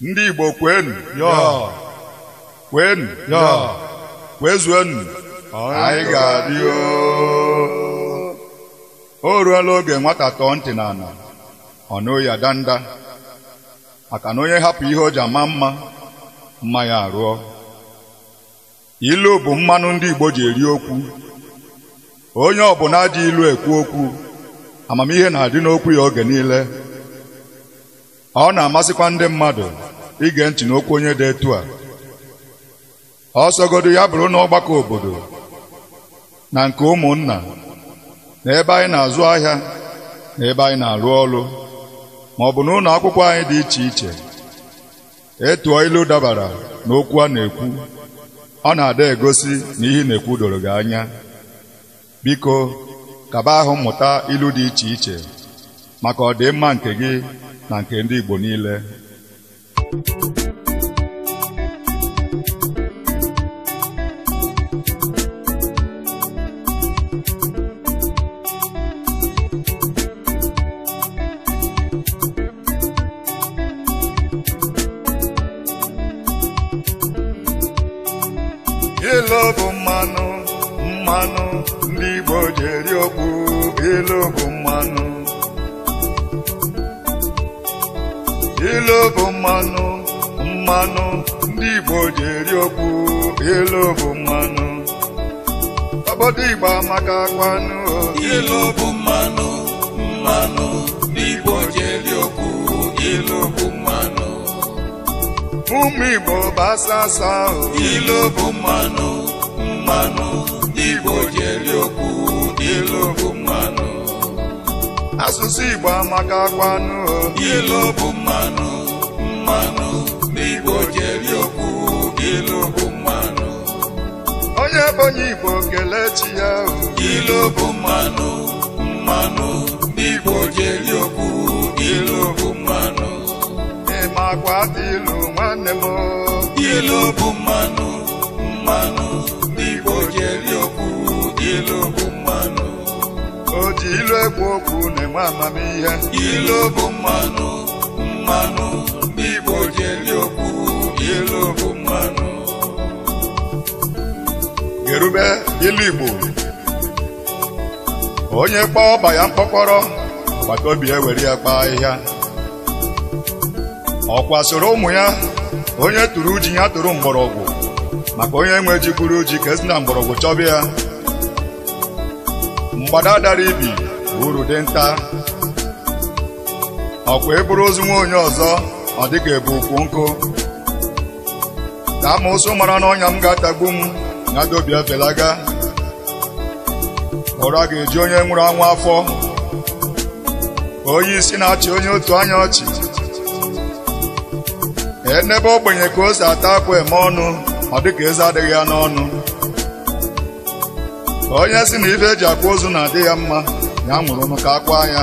ndị Igbo kwenu yọọ kwenu yọọ enu, anyị ga-adị o ruola oge nwata tọọ ntị n'ala ọ nụghị ya danda maka na onye hapụ ihe o ji ama mma mma ya arụọ ilu bụ mmanụ ndị Igbo ji eri okwu onye ọbụla ji ilu ekwu okwu amamihe na-adị n'okwu ya oge niile ọ na-amasịkwa ndị mmadụ ige ntị n'okwu onye dị etu a ọsọgodo ya bụrụ na ọgbakọ obodo na nke ụmụnna na ebe anyị na-azụ ahịa na ebe anyị na-arụ ọrụ ma ọ bụ na ụlọ akwụkwọ anyị dị iche iche etuo ilu dabara n'okwu a na-ekwu ọ na-ada egosi na ihe na-ekwu doro gị anya biko kaba ahụ mmụta ilu dị iche iche maka ọdịmma nke gị na nke ndị Igbo niile ilo bụ mmanụ mmanụ ndị Igbo ji eri okpu bụ mmanụ ilu bụ mmanụ mmanụ ndị Igbo ji eri okwu ilu bụ mmanụ obodo Igbo amaka kwanụ ilu bụ mmanụ mmanụ ndị Igbo ji eri okwu ilu bụ mmanụ ụmụ Igbo bụ asasa ilu bụ mmanụ mmanụ ndị Igbo ji eri okwu ilu bụ mmanụ asụsụ Igbo amaka kwanu ilu bụ mmanụ mmanụ n'Igbo jeri okwu ilu bụ mmanụ onye bonye Igbo chi ya ilu bụ mmanụ mmanụ n'Igbo jeri okwu ilu bụ mmanụ ịmakwa ilu nwanne m ilu bụ mmanụ mmanụ n'Igbo jeri ilu ekwu okwu na-enwe amamihe ilu bụ mmanụ mmanụ ndị Igbo ji okwu ilu bụ mmanụ gerube ilu Igbo onye kpọọ ọba ya mkpọkọrọ gbataobi ya e were ya kpaa ahịhịa ọkwa soro ụmụ ya onye tụrụ uji ya tụrụ mgbọrọgwụ maka onye nwe jikwuru ji ka esi na mgbọrọgwụ chọba ya mgbada dara ibi uru dị nta ọkwa eburu ozu nwa onye ọzọ ọ dịka ebu ukwu nkụ ka amụsụ mara na ọnya m ga-atagbu m na dobi felaga ụra ga-eji onye nwụrụ anwụ afọ onye isi na-achị onye otu anya ọchị enebe ogbenye ka o si ata akwa eme ọnụ ọ dịka eze adịghị ya n'ọnụ onye si na ife eji akwa ozu na-adị ya mma ya mụrụ ka akwa ya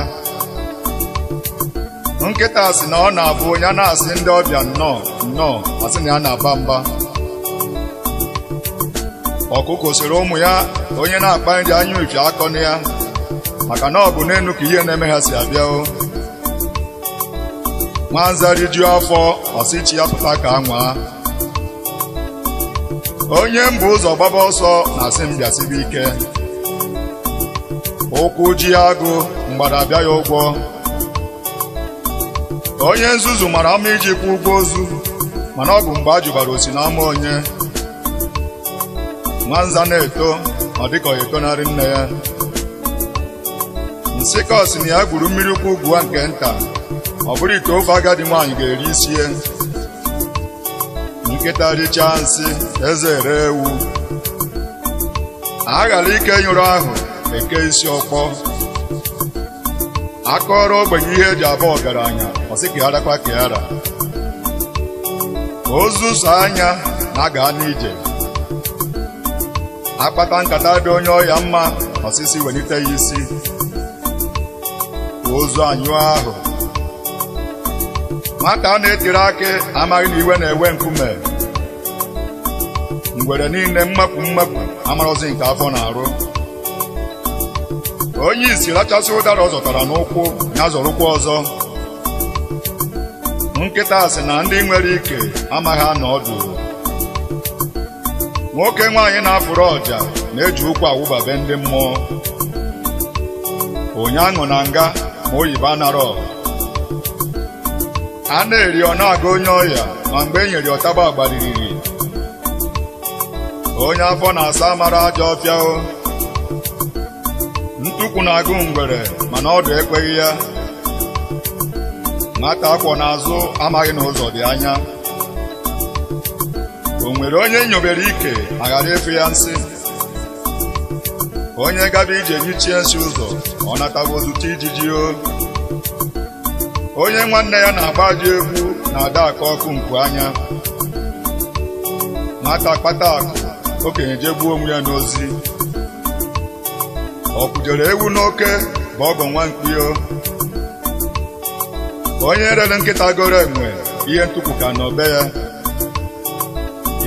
nkịta si na ọ na-abụ onye na-asị ndị ọbịa nnọọ nnọọ asị na ya na-aba mba ọkụkọ soro ụmụ ya onye na-akpa nri anya uche akọ na ya maka na ọ bụ n'elu ka ihe na-eme ha si abịa o nwanza rijuo afọ ọsị ya pụta ka a nwaa onye mbụ ụzọ gbaba ọsọ na asị m bịasibe ike ụkwụ ji agụ mgbada bịa ya ụgwọ onye nzuzu mara ama iji kwụ ụgwọ ozu mana ọ bụ mgbe a jụbara osi n'ama onye nwanza na-eto ma dịka ọ etonarị nne ya nsị ka na ya gwuru mmiri ụkwụ ugwu nke nta ọ bụrụ ite ofe agadi nwaanyị ga-eri isie nkịta richaa nsị eze ere ewu a ghara ike nyụrụ ahụ eke isi ọkpọ akọrọ ogbenye ihe eji aba ọgaranya ọsị ka kwa ka Ozu ozuso anya na aga n'ije akpata nkata dị onye ọya mma ọsịsị welite ya isi ozu anyụ ahụ nwata a na-etiri aka amaghị na iwe na-ewe nkume ngwere niile mmapụ mmapụ amarọzi nke afọ na-arụ onye isi rachasị ụdara ọ zọtara n'ụkwụ ya zọrụkwa ọzọ nkịta asị na ndị nwere ike amaghị anọ ọdụ nwoke nwaanyị na-afụrụ ọja na-eji ụkwụ awụbabe ndị mmụọ onye aṅụ na nga ma oyibo anarọ a na-eri ọ na-aga onye ọya ma mgbe e nyere ọtaba agbariri onye afọ na-asa mara ajọ ọfịa ntukwu na-agụ ngwere mana ọdụ ekweghị ya nwata akwọ n'azụ amaghị na ụzọ dị anya o nwere onye nyobere ike aghara efu ya nsị onye gaba ije nyichie nsị ụzọ ọ natago ozute ijiji o onye nwanne ya na-agbaji egwu na-ada aka ọkụ nku anya nwata kpata akụ okenye jee gbuo onwe ya n'ozi ọ kwujere ewu n'oke bụ ọgọ nwa mkpio onye rere nkịta goro enwe ihe ntụpụ ka be ya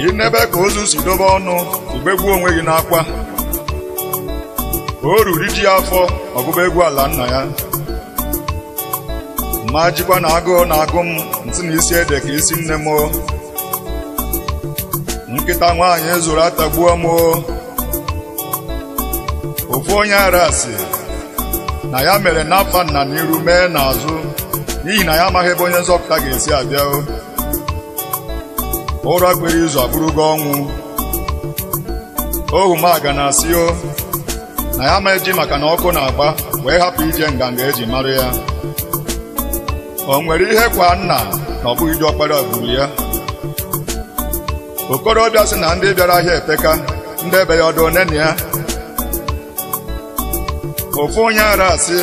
Ị nebe ka ozu si dobe ọnụ gbuo onwe gị n'akwa o ruru ji afọ ọgụgụ egwu ala nna ya ma jikwa na agụụ na agụ m ntị na isi ede ka isi nne m nkịta nwaanyị zụrụ atagbuo m ofu onye ara sị na ya mere n'afa nna n'iru mee n'azụ n'ihi na ya amaghị ebe onye nzọpụta ga-esi abịa ụra gbere izu gị ọnwụ ohu m aga na asị o na ya ma eji maka na ọkụ na-agba wee hapụ ije nganga eji mara ya o nwere ihe kwa nna na ọ bụghị ji ọkpara gburu ya okorobịa sị na ndị bịara ahịa epeka ndị ebe ya ọdụ nene ya ofu onye ara asị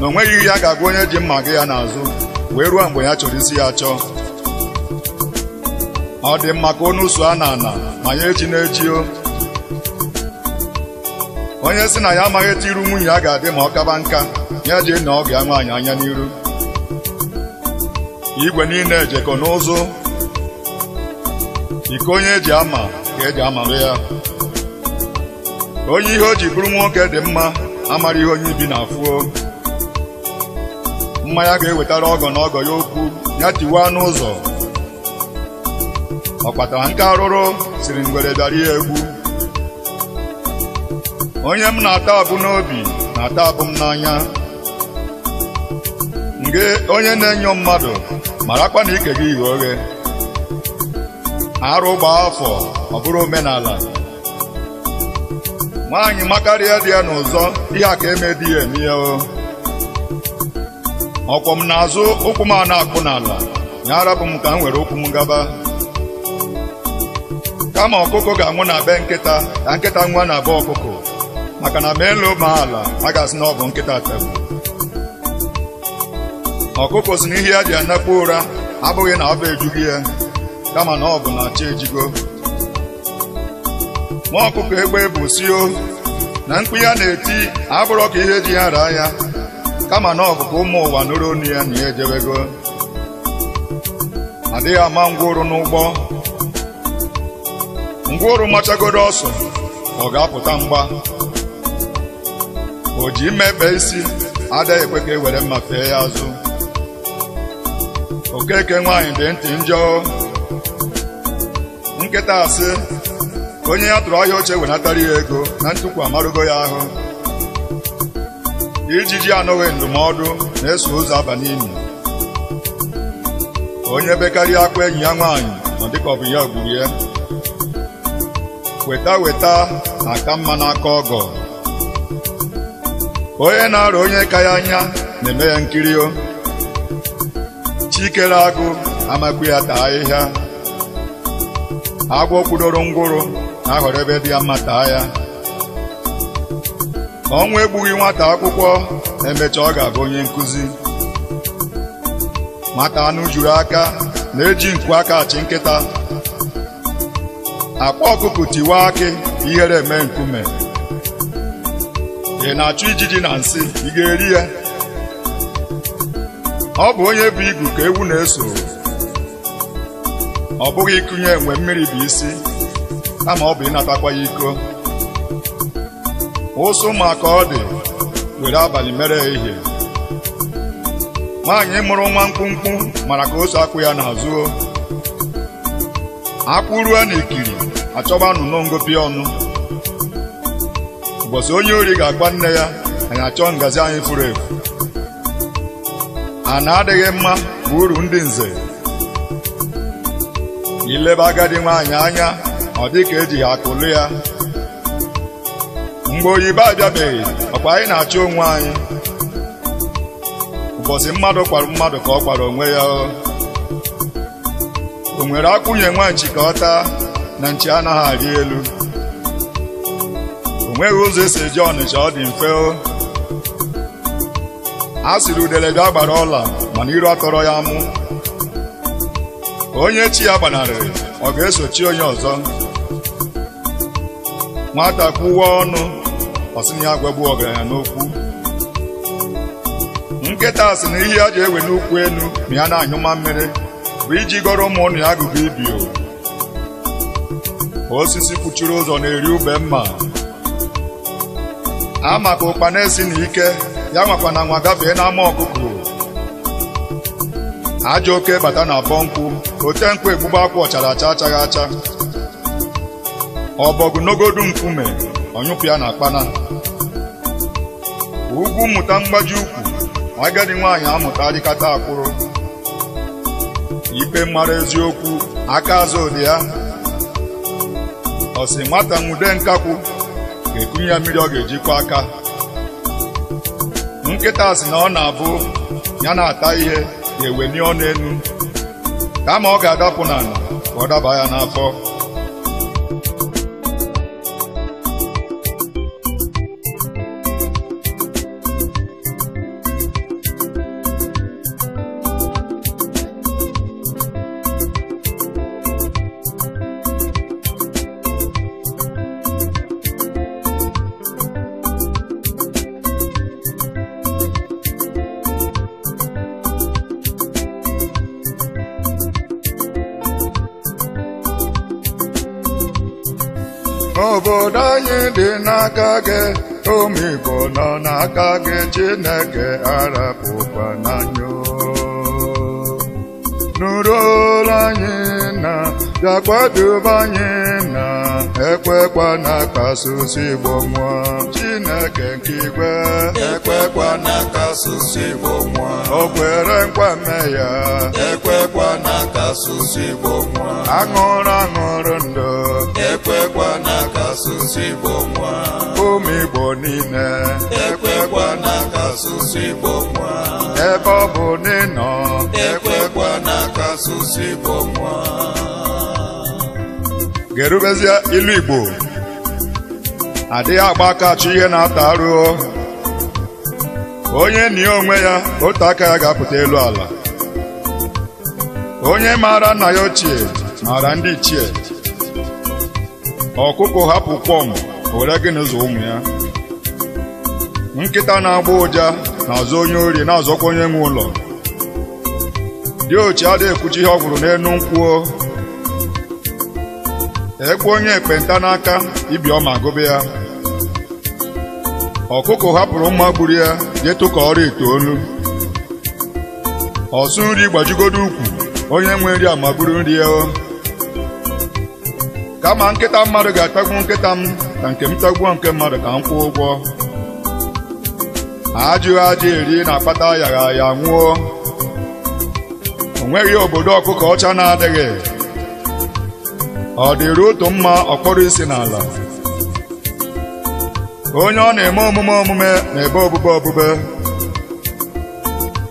na onweghị ihe ya ga-agwa onye ji mma gị ya n'azụ wee ruo mgbe ya chọrọ isi ya chọọ ọ dị mma ka onu a na ana ma ya echi na-echio onye si na ya amaghị etu iru nwunye ya ga-adị ma ọ kaba nka ya ji na ọ ga nwaanyị anya n'iru igwe niile ejekọ n'ụzụ iko onye eji ama ka eji amarụ ya onye ihe o ji bụrụ nwoke dị mma amara ihe onye ibi na-afụo mmanya ga-ewetara ọgọ na ọgọ ya okwu ya tiwaa n'ụzọ ọkpatara nke arụrụ siri ngwere bịara ya egwu onye m na-ata abụ n'obi na-ata abụ m n'anya nge onye na-enyo mmadụ marakwa na ike gị ghe oghe arụ gbaa afọ ọ bụrụ omenala nwaanyị makarịa dị ya n'ụzọ ihe a ka eme di ya emihe ọkwọ m na azụ ụkwụ m a na-akpụ n'ala ya arapụ m ka m nwere ụkwụ m gaba kama ọkụkọ ga-anwụ na be nkịta ka nkịta nwa na be ọkụkọ maka na ma elu ma ala a ga-asị na ọ bụ nkịta tebụ ọkụkọ si na ihe ya ji anakpu ụra abụghị na bụ ejughị ya kama na ọ bụ na chi ejigo nwa ọkụkọ egbe bụ sio na mkpu ya na-eti abụrọ ka ihe ji ya raa ya kama na ọ bụ ka ụmụ ụwa nụrụ onu ya na ya ejebego adịghị ama ngwụrụ n'ụgbọ ngwụrụ machagoro ọsọ ọ ga-apụta mgba o ji mmepe isi adịghị ekwe ka e were mma fee ya azụ okeke nwaanyị dị ntị njọ nketa asị onye ya tụrụ ahịa oche wenatara ya ego na ntukwu amarugo ya ahụ ijiji anọghị ndụmọdụ na-eso ụzọ aba onye bekarịa akwa enyi ya nwaanyị nọ dịka ọ bụ ya gburu ya weta weta na-aka mma n'aka ọgọ onye na arụ onye ka ya anya na-eme ya nkirio chikere agụ amakwu ya taa ahịhịa agwọ kwudoro ngwụrụ na-ahọrọ ebe dị ya mma taa ya ọnwụ egbughị nwata akwụkwọ emecha ọ ga-abụ onye nkụzi nwata anụ juru aka na-eji nkụ aka achị nkịta akpa ọkụkụ tiwa akị ihere eme nkume ị na-achụ ijiji na nsị ị ga-eri ya ọ bụ onye bụ igu ka ewu na-eso ọ bụghị ịkụnye enwe mmiri bụ isi kama ọ bụ ịnatakwa ya iko ụsụ ma ka ọ dị were abalị mere ehihie nwaanyị mụrụ nwa mkpụmkpụ mara ka oso akwụ ya na-azụo na n'ikiri achọba anụnụ ngopi ọnụ ụbọchị onye ori ga-agwa nne ya anyị achọ ngazi anyị furu efu a na-adịghị mma bụ uru ndị nze ileba agadi nwaanyị anya ọ dị ka eji akụlụ ya mgbe oyibo abịabeghị ọkwa anyị na-achọ onwe anyị ụbọchị mmadụ kwara mmadụ ka ọ kwara onwe ya o nwere akwụnye nwa nchi ka ọ taa na nchi anaghị arị elu o nweghị ụzọ esi eji ọnịcha ọ dị mfe a sịrị udelede agbara ọla mana iru atọrọ ya mụ onye chi ya gbanarịrị ọ ga-esochi onye ọzọ nwata kwuwa ọnụ ọsịna ya gwagbu ọgaranya n'okwu nkịta sị na ihe a ji ewe n'ukwu enu, ma ya na-anyụma mmiri bụ iji gọrọ ụmụ ya agụgụ ibio osisi kwuchuru ụzọ na-eri ube mma a maka ụkpana esi na ike ya nwakwa na nwa gafee n'ama ọkụkọ ajọ oke bata na abọ nkwụ ote nkwụ egbugba akwụ ọchara acha achaghị acha ọbọgụ n'ogodu nkume ọnyụpụ ya na akpana ugwu mmụta mgbaji ukwu agadi nwaanyị amụta adịkata akwụrụ ikpe mara eziokwu aka azụ ụdị ya ọsị nwata nwude nkakwụ ga-ekunye ya mmiri ọ ga-ejikwa aka nkịta sị na ọ na-abụ ya na-ata ihe ewenie ọnụ elu kama ọ ga-adapụ n'ala ka ọ daba ya n'afọ Igbo nọ n'aka gị Chineke arapụkwa n'anya nụrụ olu anyị na bịa kwadebe anyị na ekwekwa na kasụsụ Igbo nwa Chineke nke igwe ekwekwa na kasụsụ Igbo nwa o kwere nkwa mme ya ekwekwa na kasụsụ Igbo nwa aṅụrụ aṅụrụ ndụ ekwekwa n'aka asụsụ Igbo nwa ụmụ Igbo niile ekwekwa n'aka asụsụ Igbo nwa ebe ọ bụ n'ịnọ ekwekwa n'aka asụsụ Igbo nwa ga ilu Igbo adịghị agba aka achọ ihe na-ata arụọ onye nie onwe ya otu aka ya ga-apụta elu ala onye maara nna ya ochie maara ndị ichie ọkụkọ hapụ kwọm were gịnị zụ ụmụ ya nkịta na-agba ụja na-azụ onye ori na-azọkwa onye nwe ụlọ dị ochi adịghị ekwuchi ihe ọ gwụrụ n'elu nkwuo ekwe onye ekpenta n'aka ibi ọ ma gụbe ya ọkụkọ hapụrụ mma gburu ya jetụ ka ọrụ ite olu ọsụ nri gbajigodo ukwu onye nwe nri amagburu nri ya kama nkịta mmadụ ga-atagbu nkịta m ka nke m tagbuo nke mmadụ ka m kwụọ ụgwọ ajụghị ajụ eri na-akpata ayagha ya nwụọ o nweghị obodo ọkụkọ ọcha na-adịghị ọ dịrị otu mma ọkpọrọ isi n'ala onye ọ na-eme omume omume na-ebe obube obube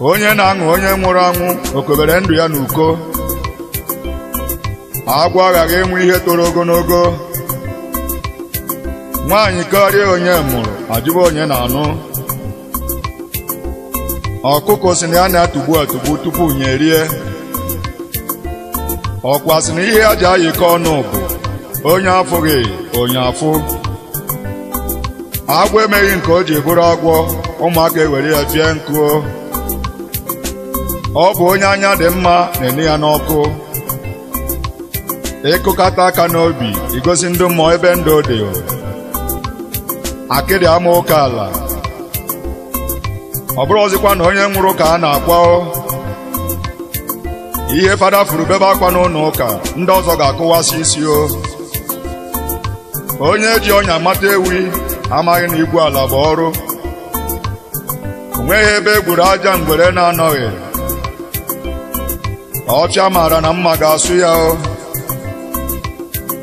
onye na-aṅụ onye nwụrụ anwụ okobere ndụ ya n'uko agwọ aghaghị enwe ihe toro ogologo nwaanyị karịa onye mụrụ ajụba onye na-anụ ọkụkọ si na ya na-atụgbu atụgbu tupu nye rie ọkwa sị na ihe aja ayikọ ọnụ bụ onye afụghị onye afụ agwọ emeghị nke o ji bụrụ agwọ ụmụaka ewere ya pie nkụ ọ bụ onye anya dị mma na-enye ya n'ọkụ Ịkụkata aka n'obi igosi ndụ mmụọ ebe ndụ dị akịrị ama ụka ala ọ bụrụ ọzịkwa na onye nwụrụ ka a na-akwa ihe fada furu bebe akwa n'ụlọ ụka ndị ọzọ ga-akụwasị isi o onye ji ọnya mata ewi amaghị na igwu ala bụ ọrụ o ebe e aja mgbere na-anọghị Ọcha maara na mma ga-asụ ya o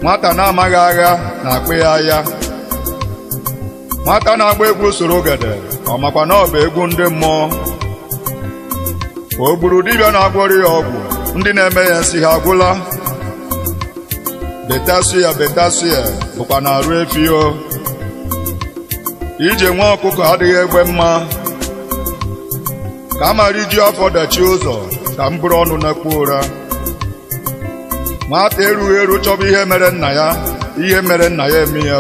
nwata na-amaghị agha na-akpụ ya agha nwata na-agba egwu soro ogede ọ makwa na ọ bụ egwu ndị mmụọ o gburu dibịa na-agwọrọ ya ọgwụ ndị na-eme ya nsị ha agwụla betasu ya bụkwa na arụ efio ije nwa ọkụkọ adịghị egbe mma ka a mara iju afọ dachi ụzọ ka m bụrụ ọnụ na-ekpu ụra nwata erughị eru chọba ihe mere nna ya ihe mere nna ya eme ya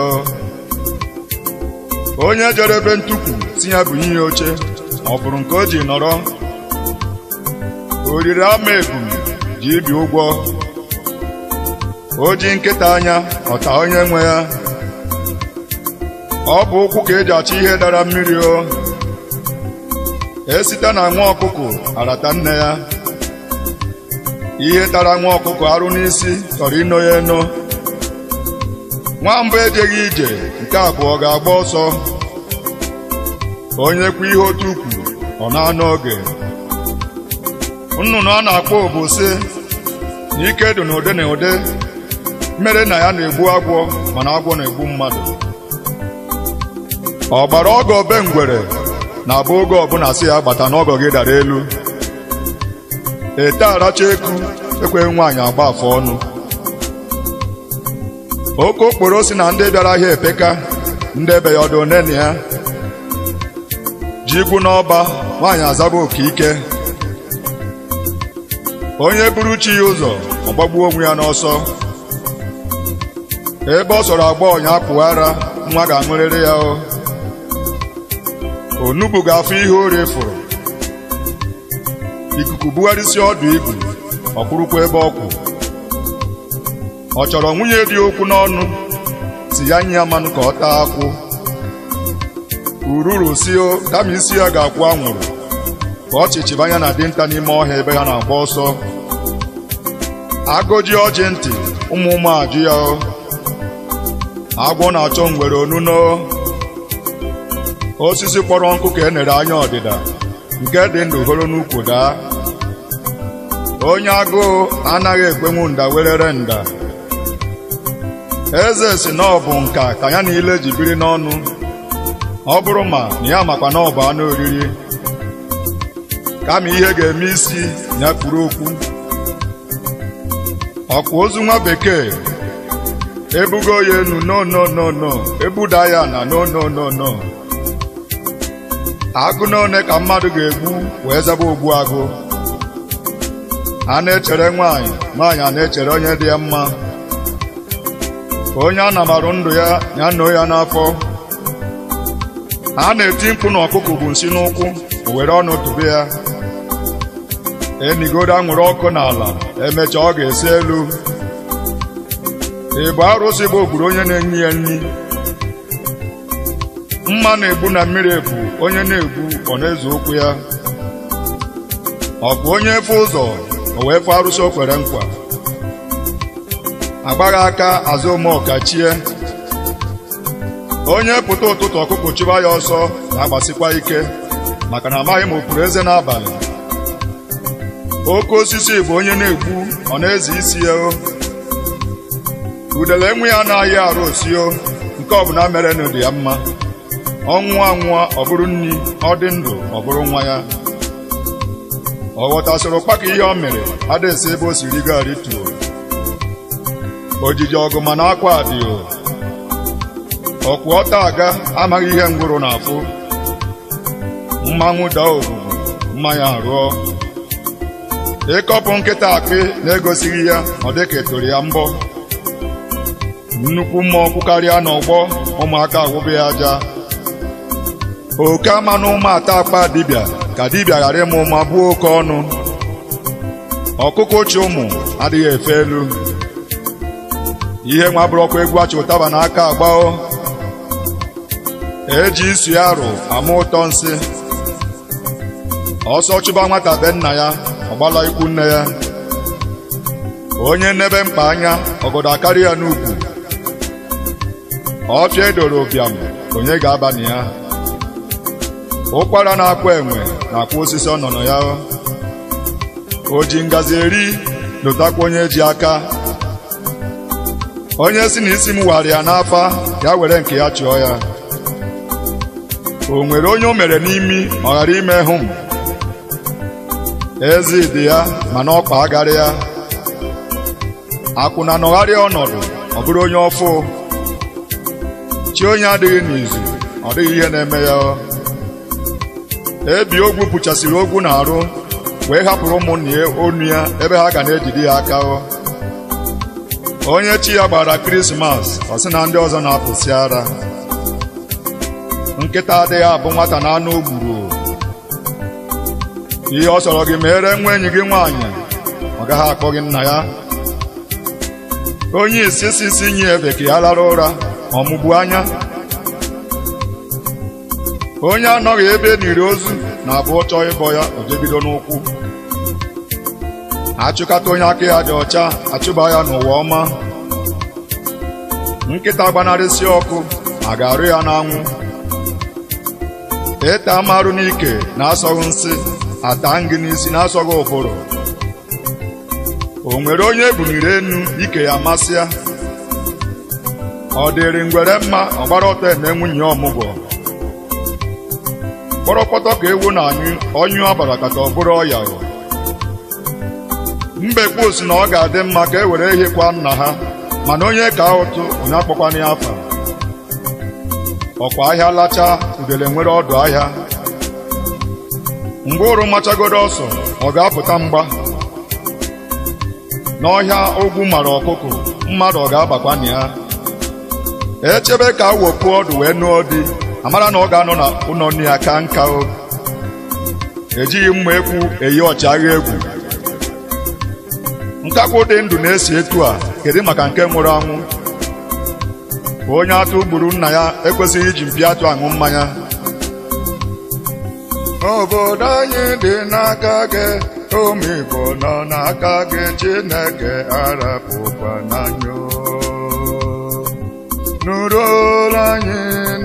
onye jere ebe ntukwu si ya bụ ihe oche ọ bụrụ nke o ji nọrọ oriri ama ebum ji ibi ụgwọ o ji nkịta anya ọta onye nwe ya ọ bụ ụkwụ ka eji achọ ihe dara mmiri o esite na nwa ọkụkụ arata nne ya ihe tara nwa ọkụkọ arụ n'isi chọrọ ịnọ ya eno nwa mbụ ejeghị ije nke abụọ ga-agba ọsọ onye kwa ihe otu ukwu ọ na anụ oge nnụnụ a na-akpọ obosi na ike dị n'ụdị na ụdị mere na ya na-egbu agwọ mana agwọ na-egbu mmadụ ọgbara ọgọ be ngwere na-abụ oge ọbụla si ya gbata n'ọgọ gị dara elu ete aracha eku ekwe nwaanyị agba afọ ọnụ oke okporo si na ndị bịara ahịa epeka ndị ebe ya ọdụ nene ya ji igwu n'ọba nwaanyị azaba oke ike onye buru chi ya ụzọ ọ gbagbuo onwe ya n'ọsọ ebe ọ sọrọ agba ọnya apụghị ara nwa ga-aṅụrịrị ya o onugbu ga-afụ ihe o refuru ikuku bugharịsịa ọdụ igwu ọ ebe ọkwụ ọ chọrọ nwunye dị okwu n'ọnụ si ya mmanụ ka ọ taa akwụ ururu sio kama isi ya ga-akwụ anwụrụ ka ọchịchị anya na dinta n'ime ọhịa ebe ya na-agba ọsọ agụji ọjị ntị ụmụ ụmụ ajụ ya agwọ na-achọ ngwere onuno osisi kpọrọ nkụ ka e nere anya ọdịda nke dị ndụ horo n'ukwu daa onye agụụ anaghị ekwenwu nda werere nda eze si na bụ nka ka ya niile ji biri n'ọnụ ọ bụrụ ma na ya makwa na bụ anụ oriri kama ihe ga-eme isi ya kwuru okwu ọkwa ozu nwa bekee ebugo ya enu no no no no ebuda ya na no no agụ n'one ka mmadụ ga-egbu wee zaba ogbu agụ a na-echere nwaanyị nwaanyị a na-echere onye dị ya mma onye a na-amarụ ndụ ya ya noo ya n'afọ a na-eti mkpu na ọkụkụ bụ nsi n'ụkwụ o were ọnụ tụbe ya enigoro anwụrụ ọkụ n'ala emechaa ọ ga-esi elu ịbụ arụsị bụ ogburu onye na-enye ya nri mma na-egbu na mmiri ebu onye na-egbu ọ na eze okwu ya ọ bụ onye efe ụzọ o wee fụ arụsị o kwere nkwa agbaghị aka azụ ụmụọka onye pụta ụtụtụ ọkụkụ chụba ya ọsọ na-agbasikwa ike maka na amaghị m okpuru eze n'abalị oke osisi bụ onye na-egbu ọ na-eze isi ya o udele enwe ya anaghị arụ osio nke ọbụla mere dị ya mma ọ nwụọ anwụọ ọ bụrụ nri ọ dị ndụ ọ bụrụ nwa ya ọ soro ụkpaka ihe ọ mere adịsị ebe o siri gari tuo ojiji ọgụ mana akwa adịghị ọkwụ ọta aga amaghị ihe ngwụrụ na-afụ mmanwụ daa obubu mmanya arụọ ịkọpụ nkịta akpị na-egosighị ya ọ dị ka etoro ya mbọ nnukwu mmụọ karịa n'ọgbọ ụmụaka agwụbe ya aja oke ama na ụmụ ata akpa dibịa ka dibịa ghara ịmụ mma buo oke ọnụ ọkụkọ ochie ụmụ adịghị efe elu ihe nwa bụrụ ọkụ egwu achị ụtaba n'aka agbao eji isu ya arụ ama ụtọ nsị ọsọ chụba nwata be nna ya ọgbala ikwu nne ya onye nnebe mkpa anya ọgọdọ akarị ya n'ugwu ọfịa edoro ụbịam onye ga-aba ya ụkwara na-akwa enwe na-akwa osisi ọnọnọ ya o ji ngazi eri lụtakwa onye ji aka onye si na isi m ya n'afa ya were nke ya chụọ ya o nwere onye o mere n'imi ọ ghara ime hụ m eze dị ya mana ọkpa agarị ya akwụna nọgharịa ọnọdụ ọ bụrụ onye ọfụ chi onye adịghị n'izu ọ dịghị ihe na-eme ya ebi ogwu pụchasịrị ogwu na-arụ wee hapụrụ ụmụnne onu ya ebe ha ga na-ejide ya aka onye chi ya gbara krismas ọ sị na ndị ọzọ na-apụsị ara nkịta adịghị abụ nwata na anụ gburu ihe ọ chọrọ gị mere nwa enyi gị nwaanyị ọ gaghị akpọ gị nna ya onye isi sisi nye ya lara ụra ọmụgbu anya onye anọghị ebe n'iri ozu na abụọ chọọ ịbọ ya ojebido n'ụkwụ achụkata onye aka ya dị ọcha achụba ya n'ụwa ọma nkịta gbanarịsị ọkụ ma ga-arụ ya n'anwụ ịta amarụ n'ike na-asọghị nsị ata ngị n'isi na-asọghị ụfụrụ o nwere onye ebuniri enu ike ya ya ọ dịrị ngwere mma ọgbara ọtọ eme nwunye ọmụgwọ kpọrọkpọtọ ka ewu na anyụ ọnyụ agbara kata ọ bụrụ ọya o mbekwu si na ọ ga-adị mma ka e were ehikwa nna ha mana onye ka ụtụ onye akpọkwana ya afa ọkwa ahịa lachaa udele nwere ọdụ ahịa ngwaụrụ machagoro ọsọ ọ ga-apụta mgba n'ọhịa ogwu mara ọkụkọ mmadụ ọ ga-abakwana ya echebe ka awọpụ ọdụ wee nụọ di amara na ọ ga-anọ na ụlọ nne ya ka nka o ejighị mma ekwu eyi ọchịagha egwu nkakwụ dị ndụ na-esi etu a kedu maka nke nwụrụ anwụ onye atụ gburu nna ya ekwesịghị iji mpi atụ aṅụ mmanya obodo anyị dị n'aka gị omigbo nọ n'aka gị Chineke arapụkwa nụrụ anyị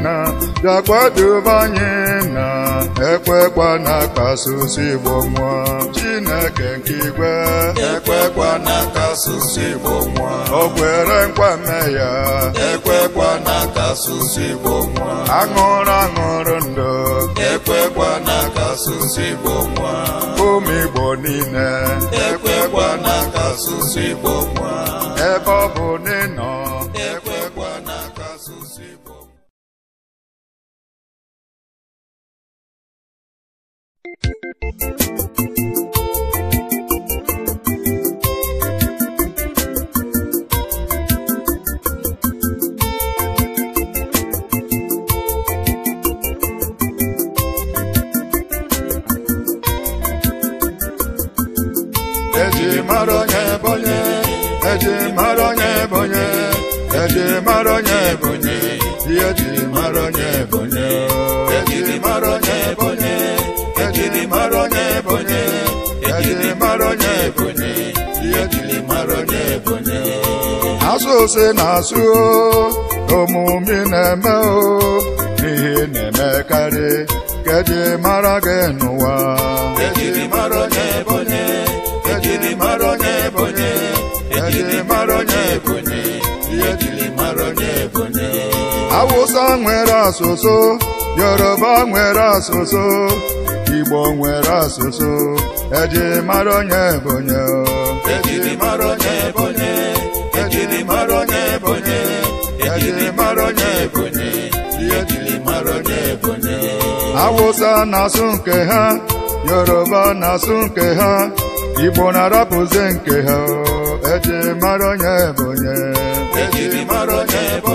na bịakwadobe anyị na ekwekwa na-akpasusu Igbo nwa Chineke nke igwe ekwekwa na-akpasusu Igbo nwa o kwere nkwa mme ya ekwekwa na-akpasusu Igbo nwa aṅụrụ aṅụrụ ndụ ekwekwa na-akpasusu Igbo nwa ụmụ Igbo niile ekwekwa na-akpasusu Igbo nwa ebe ọ bụ n'ịnọ eji mara onye bụ onye eji mara bụ mara onye bụ onye ihe bụ bụ ejiri mara onye ebonye ejiri mara onye ebonye ejiri mara onye ebonye asụ ose na-asụ omume na-eme o n'ihe na-emekarị keji mara gị n'ụwa ejiri mara onye ebonye ejiri mara onye ebonye ejiri mara onye ebonye ejiri mara onye ebonye awụsa nwere asụsụ yoruba nwere asụsụ Igbo nwere asụsụ ejiri mara onye Ebonyi ejiri mara onye Ebonyi ejiri mara onye Ebonyi ejiri mara onye ebonye ejiri mara Awụsa na-asụ nke ha Yoruba na-asụ nke ha Igbo na-arapụzi nke ha ejiri mara onye Ebonyi ejiri mara onye Ebonyi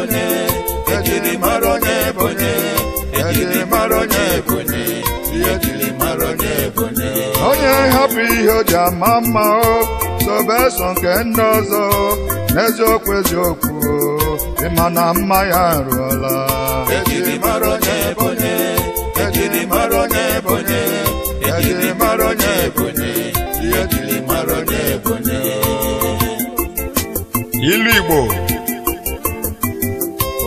onye hapụ ihe o ji ama mma o so nke ndị ọzọ n'eziokwu eziokwu ịma na mma ya arụọla ejiri mara onye ebonye ejiri mara onye ebonye ejiri mara onye ebonye ilu igbo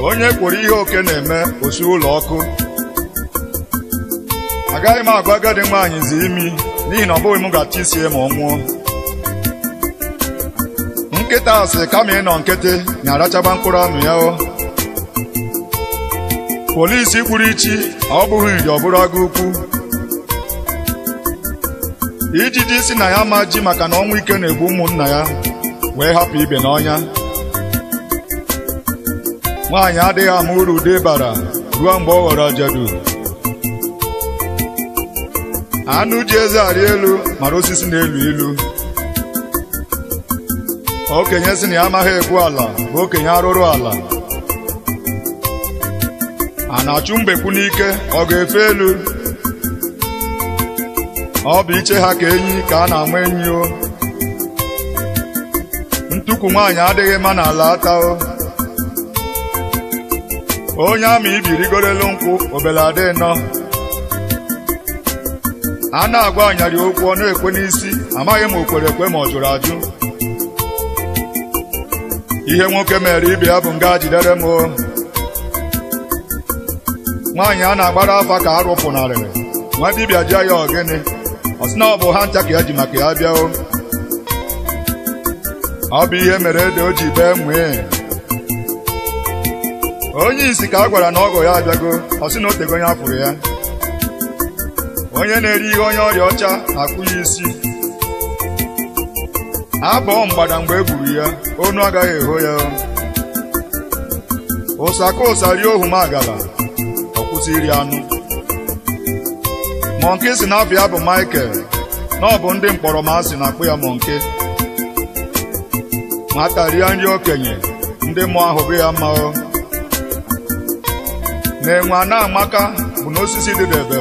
onye kwuru ihe oke na-eme osi ụlọ ọkụ agaghị m agwa agadi nwaanyị zi imi n'ihi na ọ bụghị m ga-achọ isi ma ọ nwụọ nkịta asị kama ịnọ nkịtị na-arachaba mkpụrụ amụ ya o polisi kpuru ichi ọ bụghị iji ọ bụrụ agụ ukwu ijiji si na ya ma ji maka na ọnwụ ike na-egbu ụmụnna ya wee hapụ ibe n'ọnya nwaanyị adịghị ama uru ude bara ruo mgbe ọ ghọrọ ajadu anụ ji eze arị elu mara osisi na-elu ilu okenye si na ya amaghị egwu ala bụ okenye arụrụ ala a na-achụ mgbekwu n'ike ọ ga-efe elu ọ bụ iche ha ka enyi ka a na-ama enyi o ntukwu nwaanyị adịghị mma n'ala ata o onye ama ibirigorelu nkwụ obele nọ a na-agwa anyarị okwu ọ na-ekwe n'isi amaghị m o kwere ekwe ma ọ jụrụ ajụ ihe nwoke mere ibe ya bụ nga jidere m o nwaanyị a na-agbara afa ka a rụpụnarịrị nwa dibịa jụọ ya ọgịnị ọ sị na ọ bụ ha ncha ka ya e ji maka ya bịa ọ bụ ihe mere ede o ji bee nwee onye isi ka a gwara na ọgọ ya abịago ọ sị na o tego onye afụrụ ya onye na-eri ihe onye ọrịa ọcha akwụ ya isi abụọ mgbada mgbe e gburu ya onu agaghị eho ya ụsa ka ụsa rie ohu m agala iri anụ mọnke si na bụ Michael na ọ bụ ndị mkpọrọ ma asị na-akpụ ya mọnke nwata rie nri okenye ndị mmụọ ahụ bụ ya mma na enwe amaka bụ n'osisi dịdebe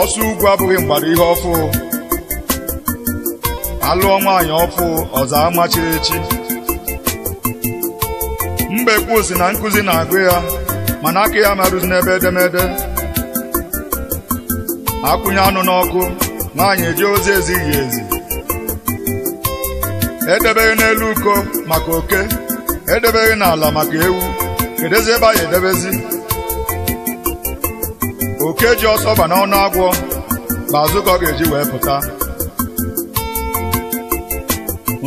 ọsọ ugwu abụghị mgbada ihe ọfụ alụọ nwaanyị ọfụ ọzọ amachiri echi mbekwu si na Nkuzi na-agụ ya mana aka ya merụzi n'ebe edemede akwụnye anụ n'ọkụ nwaanyị eji ozi ezighị ezi edebeghị n'elu uko maka oke edebeghị n'ala maka ewu kedozi ebe anyị edebezi oke ji ọsọ ba n'ọnụ agwọ bụ azụ ọ ga-eji wee pụta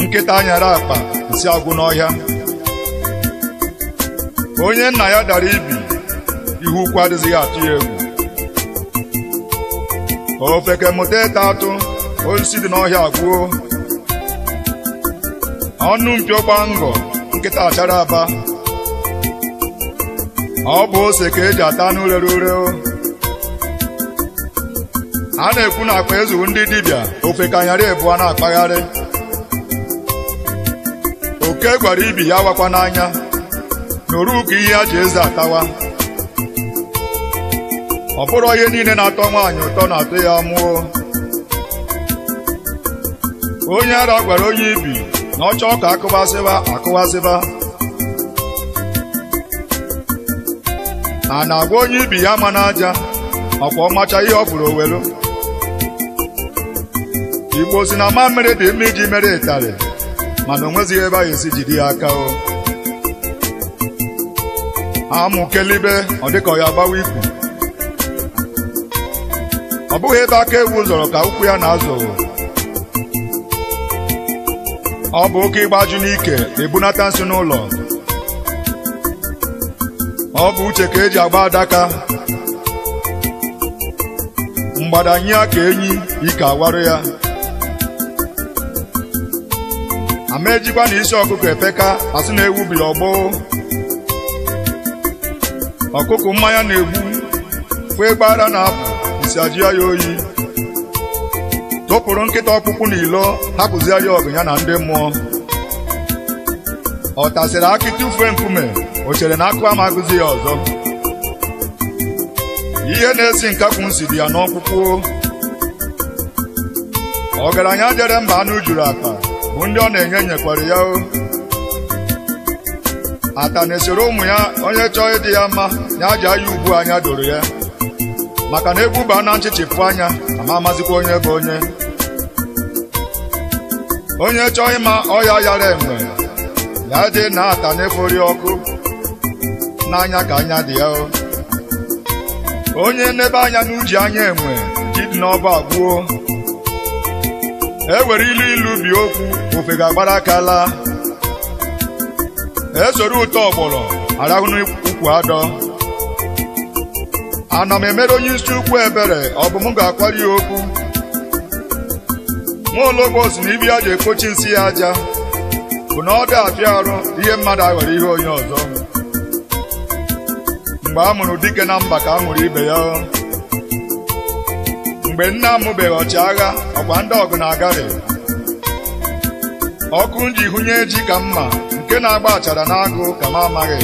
nkịta anyara akpa nsị agwụ n'ọhịa onye nna ya dara ibi ihu ukwu adịghị atụ ya egwu ofeke mụta ịta atụ osisi dị n'ọhịa agwụo ọnụ mpio gba ngọ nkịta achara aba ọ bụ ose ka eji ata anụ rere ure a na-ekwu na akpa ezuwu ndị dibịa ebu ebuo na-akpagharị oke gwara ibi ya wakwa n'anya nụrụ ka ihe a ji eze atawa ọ bụrụ ihe niile na-atọ nwaanyị ụtọ na-atọ ya mụọ onye ara gwara onye ibi na ọ chọọ ka akụwasịba akụwasịba a na-agwa onye ibi ya ma n'aja ọkwa ọmacha ihe ọ bụrụ owelu igbo si na mmamịrị dị mma iji mere ịtarị mana o nwezighị ebe a ga-esi ya aka o amụkelibe ọ dịka ya agbawa ikwu ọ bụghị ebe aka ewu zọrọ ka ụkwụ ya na-azọ ọ bụ oke ịgbaju n'ike ebunata nsị n'ụlọ ọ bụ uche ka eji agba adaka mgbada nye ka enyi ike awarụ ya mee jikwa na isi ọkụkọ efeka asị na ewu biri ọgbọ ọkụkọ mmanya na-egbu kwee gbara na-apụ isi ajụ ya oyi tụpụrụ nkịta ọkpụkpụ na ilo hapụzia ya ọgụ ya na ndị mmụọ ọ tasịrị akị tụfuo nkume o chere na akụ ama ya ọzọ ihe na-esi nkakwu nsi dị ya n'ọkpụkpụ ọgaranya jere mba anụ juru akpa ndị ọ na-enye nyekwara ya o atana esoro ụmụ ya onye chọọ ịdị ya mma ya ji aya ubu anya doro ya maka na egbuba na nchịchịpụ anya ama amazikwa onye bụ onye onye chọọ ịma ọya yara enwe ya dị na ata efori ọkụ n'anya ka anya dị ya o onye n'ebe anya n'uji anya enwe jidi n'ọba gbuo enwere ilu ilu bie okwu ofe ga-agbara aka laa esoro ụtọ ọgbọrọ arahụ n'ukwu adọ ana m emere onye isi ukwu ebere ọ bụ m ga-akwari ya okwu nwaologbo si na ibi ya ga ekpochi nsị ya aja bụ na ọ dị afịa arụ ihe mmadụ aghọrọ ihe onye ọzọ mgbe a mụrụ dike na mba ka a mụrụ ibe ya mgbe nna amụbeghị ọchịagha ọkwa ndị ọgụ na-agari ọkụ m ji hụnye ji ka mma nke na-agba achara n'agụ ka m amaghị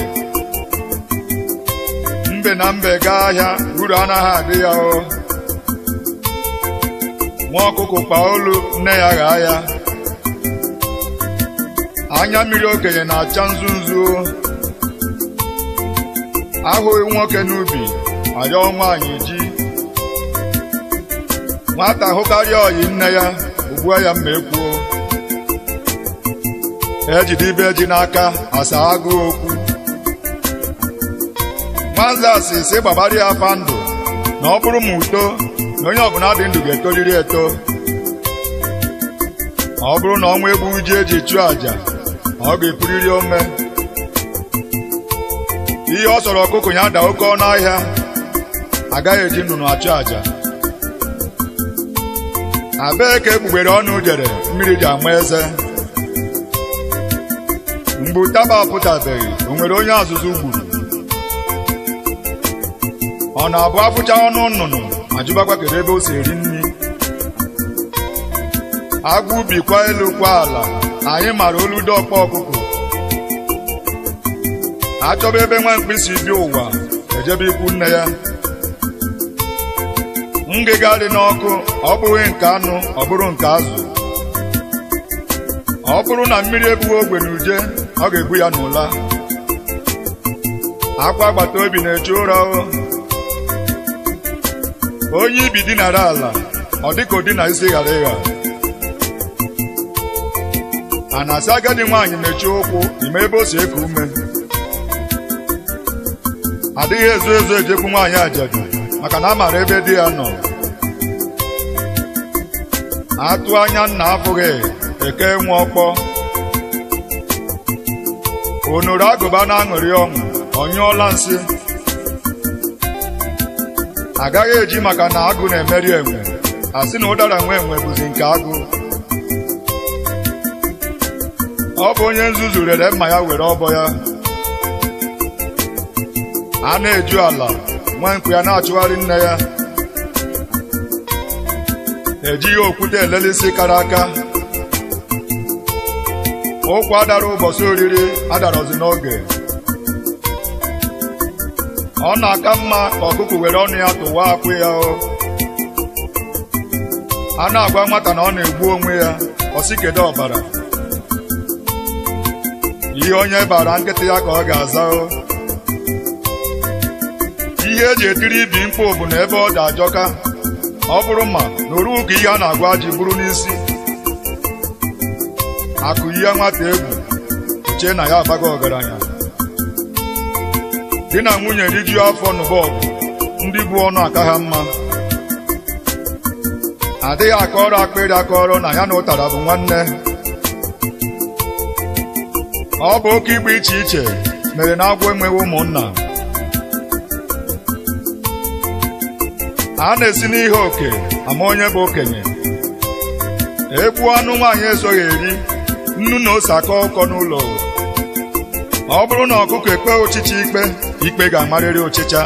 mbe na mbe gaa ahịa uru anaghị adị ya o nwa ọkụkụ kpa olu nne ya ghaa ya anya mmiri okenye na-acha nzu ahụghị nwoke n'ubi arịọ nwaanyị nwata hụkarịa ọyị nne ya ugbua ya mma ekwuo ejide ibe ji n'aka asa agụụ okwu nwanze asị si gbabara ya afa ndụ na ọ bụrụ m uto na onye ọbụla dị ndụ ga-etoriri eto ma ọ bụrụ na ọnwa egbu ji eji chụọ àjà ọ ga-epuriri ome ihe ọ sọrọ ọkụkụ ya da oke ọnụ ahịa agaghị eji ndụ na-achụ àjà abee ka egbugbere ọnụ jere mmiri ji ama eze mgbe ụtaba apụtabeghị o nwere onye azụzụ gburu ọ na-abụ afụcha ọnụ nnụnụ ma ajụbakwa kedu ebe o si eri nri Agwa ubi kwa elu kwa ala anyị mara olu dọkpa ọkụkọ achọba ebe nwa mkpịsị bi ụwa ejebe ikwu nne ya ngịga dị n'ọkụ ọ bụghị nke anụ ọ bụrụ nke azụ ọ bụrụ na mmiri ebughị ogbe na uje ọ ga-ebu ya n'ụla akwa agbata obi na-eche ụra onye ibi dinara ala ọ dịka odi na isi ghara ịgha a na-asị agadi nwaanyị mechie ụkwụ ime ebe o si eku ume adịghị ezo ezo ejekwu nwaanyị ajadu maka na a maara ebe di ya nọ atụ anya nna abụghị eke nwe ọkpọ onoro agụba na-aṅụrị ọṅụ ọnyụọla nsị agaghị eji maka na agụ na-emeri enwe asị na ụdara nwe enwe bụzi nke agụ ọ bụ onye nzuzu rere mma ya were ọbọ ya a na-eju ala nwa nkụ ya na-achụgharị nne ya na-ejighị okwute elele isi kara aka ụkwa adara ụbọchị oriri adarọzi n'oge ọ na-aka mma ka ọkụkụ were ọnụ ya tụwa akwụ ya o a na-agwa nwata na ọ na-egbu onwe ya ọsị ọbara ihe onye bara nkịtị ya ka ọ ga-aza o ihe eji etiri ibi mkpu bụ na ebe ọ dị ajọka ọ bụrụ ma na oruwu ka ihe a na-agwa ji bụrụ n'isi akụ ihe nwata egwu chee na ya abaghị ọgaranya dị na nwunye rijuo afọ n'ụba ndị bụ ọnụ aka ha mma adịghị akọrọ akpịrị akọrọ na ya na ụtara bụ nwanne ọ bụ oke ịgba iche iche mere na agwọ enweghị ụmụnna a na-esi n'ihe oke ama onye bụ okenye Ekwu anụ nwaanyị ezoghị eri nnu na ose akọ ụkọ n'ụlọ ọ bụrụ na ọkụkọ ekpe ụchịcha ikpe ikpe ga-amarịrị ụchịcha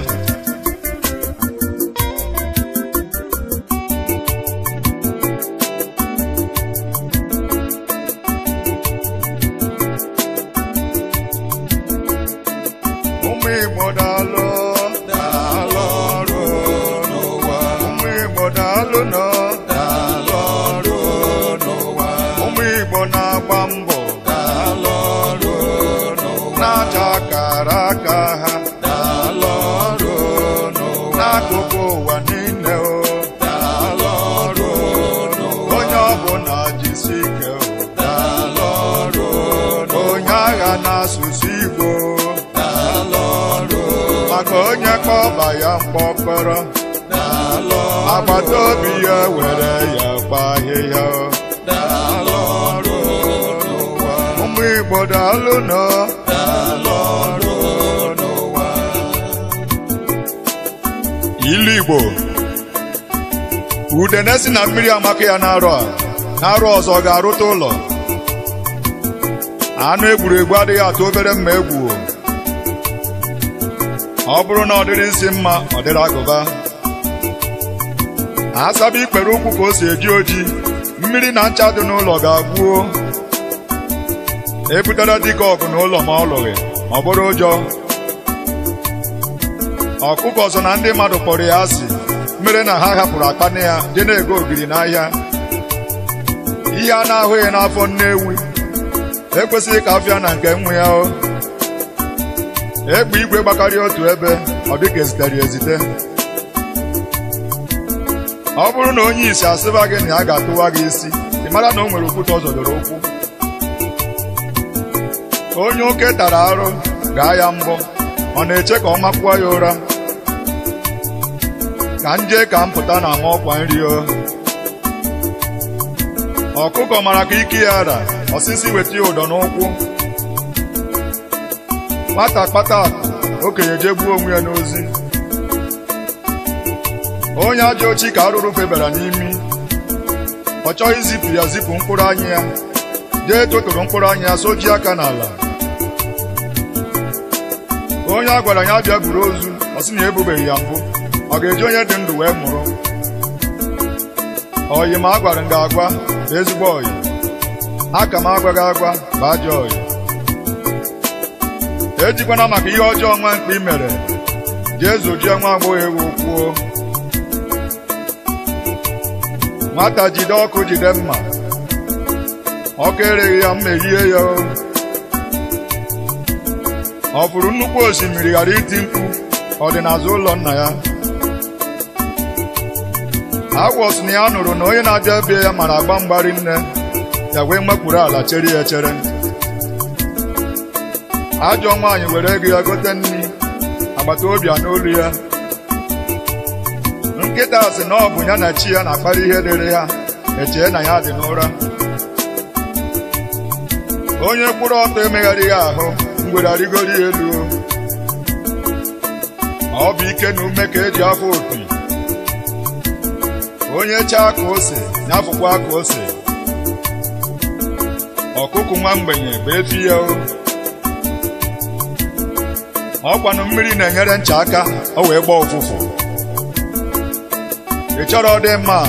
daalụnụ daalụ ọrụ n'ụwa ụmụ Igbo na-agba mbọ daalụ ọrụ n'ụwa na-acha akara aka ha daalụ ọrụ n'ụwa n'akụkụ ụwa niile o daalụ ọrụ n'ụwa onye ọbụla jisi ike daalụ ọrụ onye agha na n'asụsụ Igbo daalụ ọrụ maka onye kpọba ya mkpọkpọrọ agbata obi ya were ya gba ahịhịa ụmụ Igbo daalụ nọ ilu Igbo udene si na mmiri amaka ya na-arụ a na-arụ ọzọ ga-arụta ụlọ anụ egwuregwu adịghị atụ obere mma egwu ọ bụrụ na ọ dịrị nsị mma ọ dịrị agụba a ikpere ụkwụ ka o si eji oji mmiri na ncha dị n'ụlọ ga-agwuo ebutere dịka ọgụ n'ụlọ ma ọ lụghị ọ bụrụ ụjọ ọkụkọ ọzọ na ndị mmadụ kpọrọ ya asị mere na ha hapụrụ akpa na ya dị na-ego ogiri n'ahịa ihe a na-ahụghị n'afọ nne ewu ekwesịghị ka afịa na nke nwa ya o egbe igwe gbakarịa otu ebe ọ dịka ezitere ezite ọ bụrụ na onye isi asịba gị na ya ga-atụwa gị isi ị mara na o nwere okwute ọ doro ụkwụ onye oke tara arụ gaa ya mbọ ọ na-eche ka ọ makwuo ya ụra ka m ka m pụta na ama ọkwa nri o ọkụkọ mara ka ike ya ara osisi weta ya ụdọ n'ụkwụ nwata kpata okenye gbuo onwe ya n'ozi onye ajọ ochi ka arụrụ febara n'imi ọ chọghị izipụ ya zipụ mkpụrụ anya ya jee totoro mkpụrụ anya ya soji aka n'ala onye a gwara ya bịa buru ozu ọ sị na ebubeghị ya mbụ ọ ga-eji onye dị ndụ wee mụrụ oyi ma a gwara m ga-agwa ezigbo oyi aka m gị agwa 'Ba ajọ oyi ejikwana maka ihe ọjọọ nwa mkpa i mere jee zojie nwa agbọghọ ewu kwuo nwata jide ọkụ jide mma ọkụ ereghị ya mma ehie ya ọ fụrụ nnukwu osimiri ghara iti mkpu ọdịnazụ ụlọ nna ya agwọ na ya nụrụ na onye na-abịa ebe ya mara agba mgbari nne ya wee mekpuru ala chere ya echere ajọ nwaanyị were ego ya gote nri agbata obi a n'olu ya nkịta sị na ọ bụ ya na chi ya na-akpara ihe rere ha echee na ya dị n'ụra onye kpụrụ ọtọ ya ahụ ngwere arịgoro ya elu ọ bụ ike na ume ka eji afọ opi onye chaa ka ose nyafụkwa ka ose ọkụkụ nwa mgbenye bụ efi ya o ọkwanụ mmiri na-enyere ncha aka o wee gbaa ụfụfụ ị chọrọ dị mma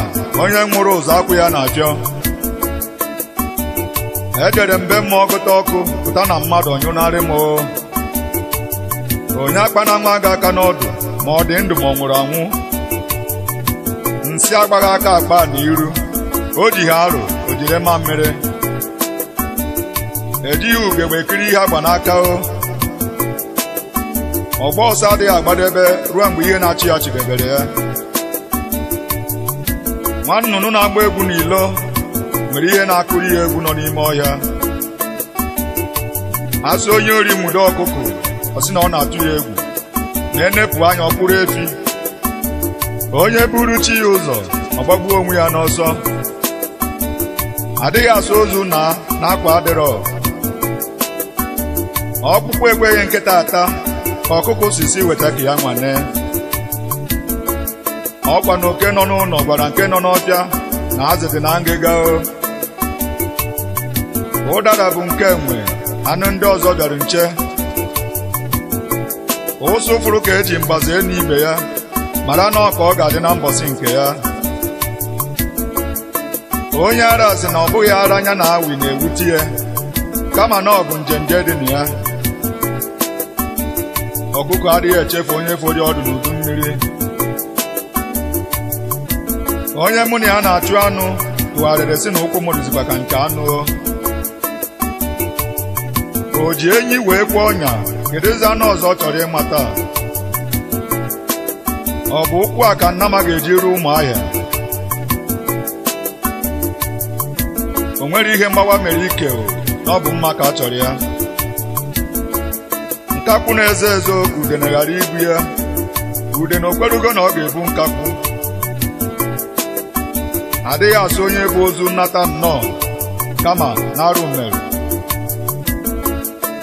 onye nwụrụ ụzọ akwụ ya na abịọ ejere mbe mmụọ gụta ọkụ pụta na mmadụ ọnyụnarị m onye akpana nwa gị aka n'ọdụ ma ọ dị ndụ ma ọ nwụrụ anwụ nsị agbaghị aka akpa n'iru o ji ha arụ o jiri mma mmiri ejighị ugegbe ekiri ihe agba n'aka o ọgba ọsọ adịghị agbadebe ruo mgbe ihe na-achị ya chidebere ya nwa nnụnụ na-agba egwu n'ilo nwere ihe na-akụrụ ya egwu nọ n'ime ọhịa azụ onye ori mudo ọkụkụ ọ na ọ na-atụ ya egwu na-enepụ anya ọkpụrụ efi onye buru chi ya ụzọ ọ gbagbuo onwe ya n'ọsọ adịghị asụ ozu na na-akwa adịrọ ọkpụkpụ ekweghị nkịta ata ka ọkụkụ sisi weta ka ya nwane ọkwa na oke nọ n'ụlọ gwara nke nọ n'ọbịa na azụ dị na ngịga ụdara bụ nke enwe anụ ndị ọzọ bịara nche ụsụ fụrụ ka eji mgbaze enu ibe ya mara na ọka ọ ga-adị na mbọsị nke ya onye ara sị na ọ bụghị ara anya na awi na-ewute ya kama na ọ bụ njenje dị na ya ọkụkọ adịghị echefu onye fọdụ ọdụ n'udu mmiri onye mụ na ya na-achụ anụ tụgharịrị si na ụkwụ m dịzikwa ka nke anụ o ji enyi wee kwuo ọnya kedụzi anụ ọzọ ọ chọrọ ịmata ọ bụ ụkwụ a ka Nnama ga-eji ruo ụmụahịa o nwere ihe mgbawa mere ike o na ọ bụ mma ka a chọrọ ya nkakwụ na-ezo ezo ka ude na ghara ibu ya ude na okwerugo na ọ ga-ebu nkakwụ adịghị asụ onye bụ ozu nnata nnọọ kama n'arụ arụ mere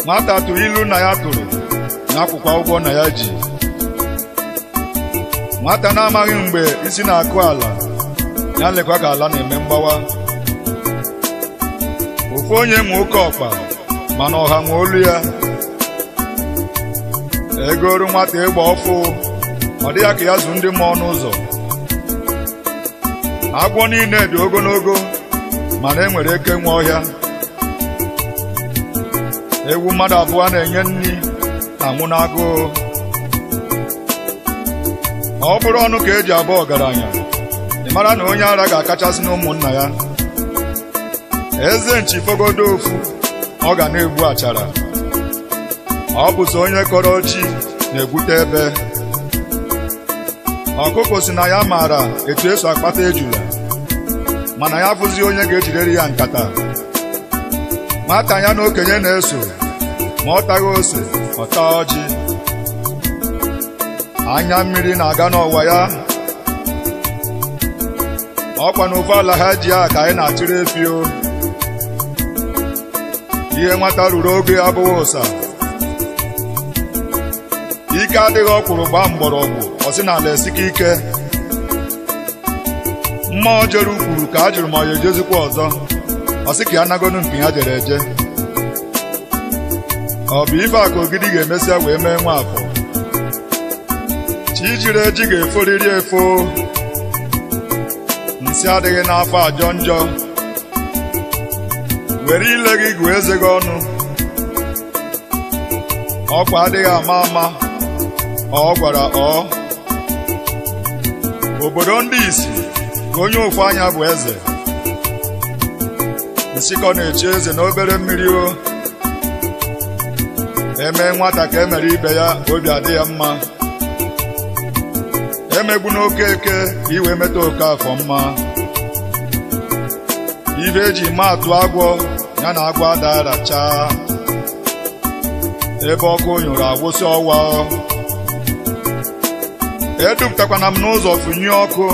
nwata tụrụ ilu na ya tụrụ n'akwụkwọ ụgwọ na ya ji nwata na-amaghị mgbe isi na-akụ ala ya lekwa ka ala na-eme mgbawa ofu onye ma oke ọkpa mana ọha nwe olu ya egoru nwata ịgba ọfụ ọ dịghị ka ya zụ ndị mmụọ n'ụzọ agwọ niile dị ogologo mana e nwere eke nwe ọhịa ewu mmadụ abụọ na-enye nri na n'agụụ ọ bụrụ ọnụ ka e ji abụ ọgaranya ị mara na onye ara ga-akachasị n'ụmụnna ya eze nchi fogodo ofu ọ ga na-egbu achara ọ bụ onye kọrọ chi na-egwute ebe ọkụkọ si na ya maara etu esu akpata ejula mana ya bụzi onye ga ejirere ya nkata nwata ya na okenye na-eso ma ọ taghị ose ọ taa ọjị anya mmiri na-aga n'ọwa ya ọkwa na ala ha ji ya ka anyị na-atụrụ efi ihe nwata ruru oge abụghị ụsa ike adịghị ọkwụrụ gbaa mgbọrọgwụ ọsị na ala esike ike mma jere ukwuru ka a jụrụ ma ọ ya ejezikwa ọzọ ọsị ka ya nagonu nke ya jere eje ọ bụ ife ka ogidi ga-emesịa wee mee nwa afọ chi jiri eji ga-eforiri efo nsị adịghị n'afọ ajọ njọ were ile gị gụọ eze gị ọnụ ọkwa adịghị ama ama ọ gwara ọ obodo ndị isi onye ofu anya bụ eze nsikọ na eche eze n'obere mmiri o eme nwata ka emere ibe ya obi adị ya mma emegbu n'oke eke iwe meta oke afọ mma ibe eji maatụ agwọ ya na agwọ adara ebe ọkụ nyụrụ agwụsị ọwa na m n'ụzọ fụnye ọkụ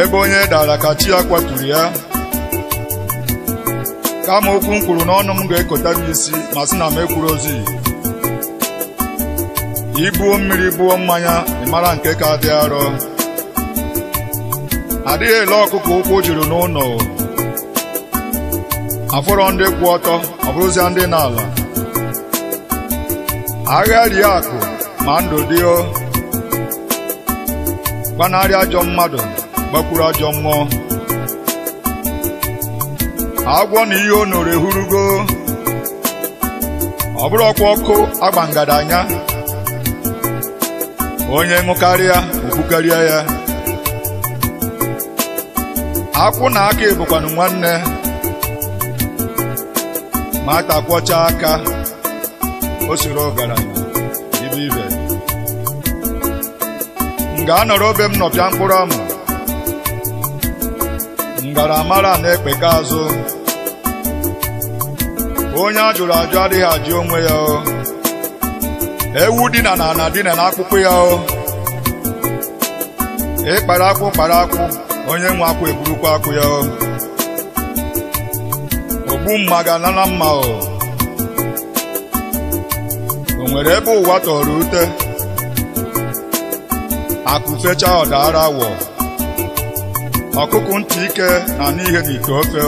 ebe onye dara ka chi ya kwaturu ya kama okwu m kwuru n'ọnụ m ga-ekota m isi ma sị na m ekwuru ozi ibuo mmiri buo mmanya ịmara nke ka dị arọ adịghị ele ọkụkọ ụkwụ juru n'ụlọ afọrọ ndị kwụ ọtọ ọ bụrụzia ndị n'ala agha rie akụ ma ndụ dịo gbanarị ajọ mmadụ gbakwuru ajọ mmụọ agwọ na ihe o noro ehurugo ọ bụrụ ọkwa ọkụ agba anya onye ṅụkarịa okpukarịa ya akwụ na aka ebụkwanụ nwanne ma takwọcha aka o siri ọgaranya m ga-anọrọ obe m nọpịa mkpụrụ amụ ngaramara na-ekpeka azụ onye a jụrụ ajụ adịghị ajụ onwe ya o ewu dina na ana dina na akpụkpọ ya o ịkpara akwụ kpara akwụ onye nwe akwụ eburukwa akwụ ya o ogbu mma ga-anana mma o o nwere ebe ụwa tọrọ ute akụ fecha ọda ara wọ ọkụkụ ntị ike na n'ihe n'ite ofe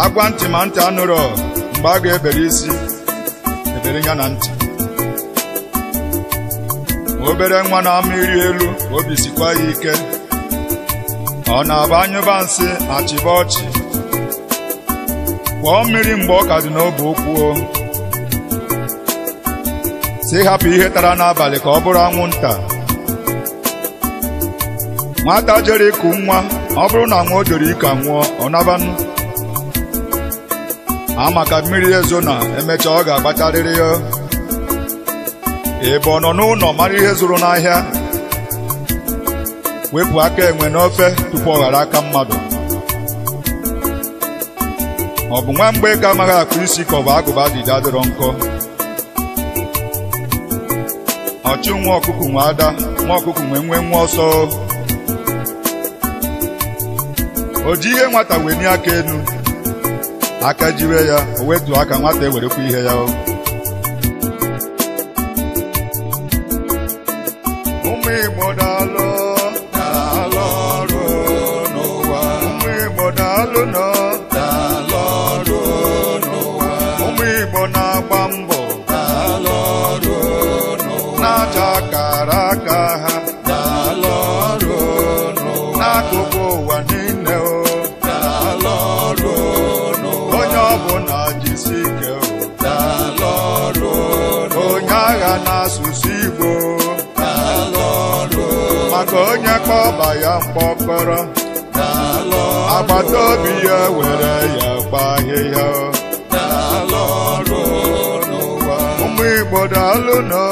agwa ntị ma ntị anụrọ mgbe a ga-ebere isi ebere ya na ntị obere nwa na-ama iri elu obi sikwa ya ike ọ na-aba anyụba nsị achịba ọchị kwọọ mmiri mgbe ọ ka dị n'obe ụkwụ si hapụ ihe tara n'abalị ka ọ bụrụ anwụnta nwata jere ịkụ nwa ọ bụrụ na nwa o jere ike nwụọ ọ nabanụ amaka mmiri ezo na emechaa ọ ga-agbatarịrị ya ebe ọ nọ n'ụlọ mara ihe zụrụ n'ahịa wepụ aka enwe n'ofe tupu ọ ghara aka mmadụ ọ bụ nwa mgbe amaghị akpụ isi ka ọ bụ agụba dịda adịrọ nkọ Chiụ nwa ọkụkụ nwe ada nwa ọkụkụ nwe nwee nwa ọsọ o ji ihe nwata wee nye aka enu aka jiwe ya o wetu aka nwata ewerekwa ihe ya mkpọkọrọ agbata obi ya were ya gba ahịhịa ụmụ Igbo daalụ nọ